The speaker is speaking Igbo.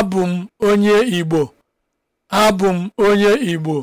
Abụ m onye Igbo. m onye Igbo.